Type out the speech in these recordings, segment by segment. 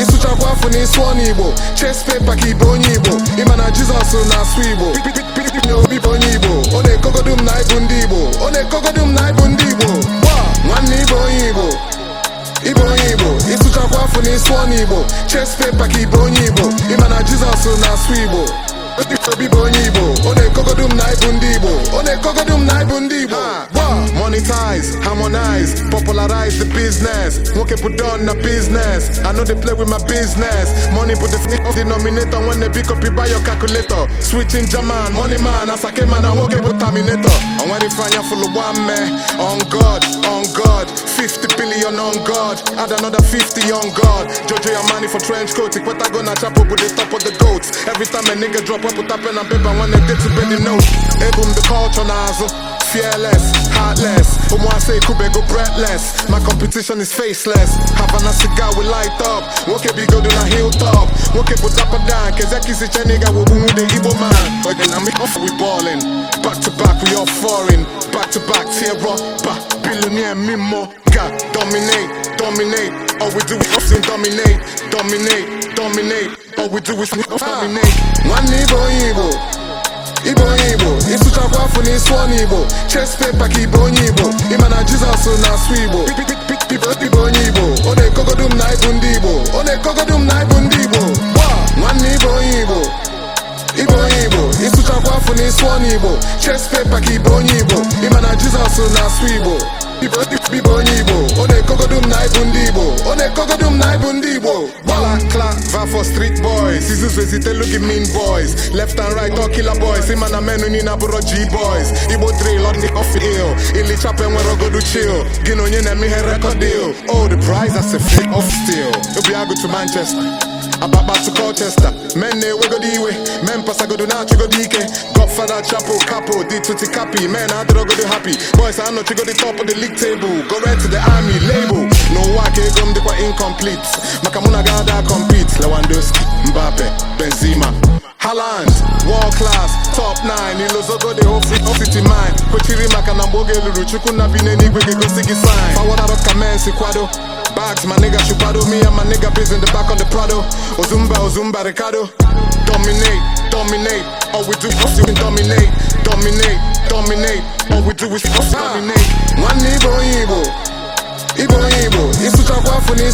ịsụchakwa afọ igbo chest paper ka ibe onye igbo ịma na jizọs na asụ igbo na obi bụ onye igbo ọ na-ekogodu m na ịbụ ndị igbo ọ na-ekogodu m na ịbụ na-esu ọnụ igbo chest paper ka ibe onye igbo ịma na jizọs na-asụ igbo obi bụ onye igbo ọ na-ekogodu m na ibu ndị igbo ọ na-ekogodu m na ibu ndị igbo monetize, harmonize, popularize the business. Nwoke put on na business. I know they play with my business. Money put the denominator when they pick up you buy your calculator. Switching German, money man, I sake man, I nwoke put terminator. Had it fine for the one man. On God, on God. 50 billion on God. Add another 50 on God. Jojo your money for trench coat. Take what I gonna chop up with the top of the goats. Every time a nigga drop up with a pen and paper when they get to bend the note. Ebum the culture nozzle. fearless, heartless. say Omuase go breathless. My competition is faceless. have Havana cigar we light up. Woke be go na hilltop. Woke put up a down. Kezaki si chaniga wo boom the Igbo man. But then I'm off we ballin'. Back to back we all foreign. Back to back tear up. Back billionaire mimo. God dominate, dominate. All we do is often dominate, dominate, dominate. All we do is ah. dominate. One Igbo Igbo. sụọ n'Igbo chest paper ka ibe onye Igbo ịma na Jizọs na-asụ Igbo ibe onye Igbo ọ na-ekogodu m na ibu ndị Igbo ọ na-ekogodu m na ibu ndị Igbo nwanne ibe onye Igbo ibe onye Igbo ịsụchakwa afọ na ịsụọ igbo, chest paper ka ibe onye Igbo ịma na Jizọs na-asụ Igbo ibe onye Igbo ọ na-ekogodu m na ibu ndị Igbo ọ na-ekogodu m na ibu ndị Igbo Africa for street boys. Seasons we sit look mean boys. Left and right, all killer boys. See man, a man in a G boys. Igbo drill on the off ill. Ili chapel when I go to chill. Gino nyen and me head record deal. Oh, the prize that's a flick of steel. You'll be go to Manchester. Ababa to Colchester. Men ne eh, we go the way. Men pass I go to now, go DK. Godfather, Chapo, Capo, D to Cappy. Man, I don't go to happy. Boys, I know you go the top of the league table. Go right to the army label. No, I can't come, they incomplete. Makamuna got that complete. Lewandowski, Mbappe, Benzema. Haaland, world class, top 9 Ilozogo the whole free city mine kwechiri maka na mgbe oge lụrụ chukwu na bi n'eluigwe ga-egosi gị sign fawadaro kamensi kwado bags my nigga chupado me and my nigga biz in the back of the prado ozumba ozumba ricardo dominate dominate all we do is you dominate dominate dominate all we do is dominate ah. one igbo igbo igbo igbo isucha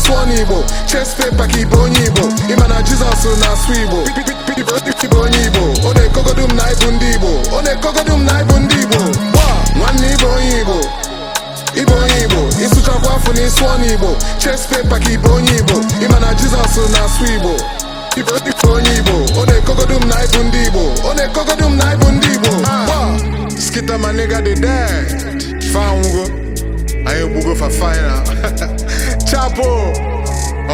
tụọ n'Igbo cheste paka ibe onye Igbo ịma na Jizọs na-asụ Igbo ibe onye Igbo ọ na-ekogodu m na ịbụ ndị Igbo ọ na-ekogodu m na ịbụ ndị Igbo nwanne ibe onye Igbo ibe onye Igbo ịsụchakwa afọ na ịsụọ n'Igbo cheste paka ibe onye Igbo ịma na Jizọs na-asụ Igbo ibe onye Igbo ọ na-ekogodu m na ịbụ ndị Igbo ọ na-ekogodu m na ịbụ ndị Igbo skita ma nigga dị dead fango go for final. Chapo,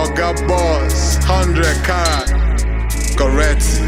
Oga Boss, 100 carat, correct.